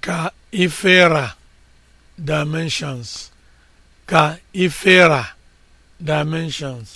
ka ifera dimensions dimensions